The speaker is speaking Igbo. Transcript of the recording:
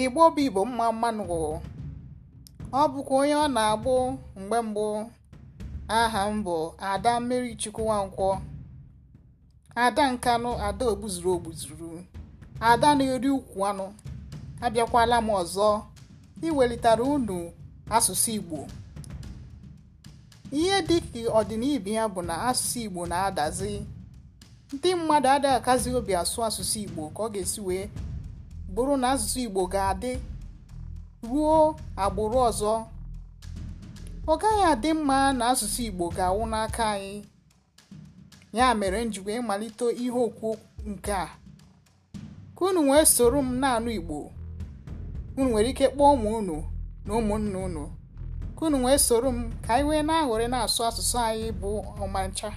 igbo bụ igbo mma mmanụ ọ bụkwa onye ọ na-agbụ mgbe mbụ aha m bụ ada mmeri chukwu nwankwọ ada nkanụ ada ogbuzuru ogbuzuru ada na-eri ukwu anụ abịakwala m ọzọ iwelitara unu asụsụ igbo ihe dị ka ọdịnibi ya bụ na asụsụ igbo na-adazi ndị mmadụ adịghị akazi obi asụ asụsụ igbo ka ọ ga-esi wee bụrụ na asụsụ igbo ga-adị ruo agbụrụ ọzọ ọ gaghị adị mma na asụsụ igbo ga-awụ n'aka anyị ya mere njikwa ịmalite ihe okwu nke a ka unu wee soro m na-anụ igbo unu nwere ike kpọọ ụmụ unu na ụmụnna unu ka unu wee soro m ka anyị wee na-aghọrị na-asụ asụsụ anyị bụ ọmancha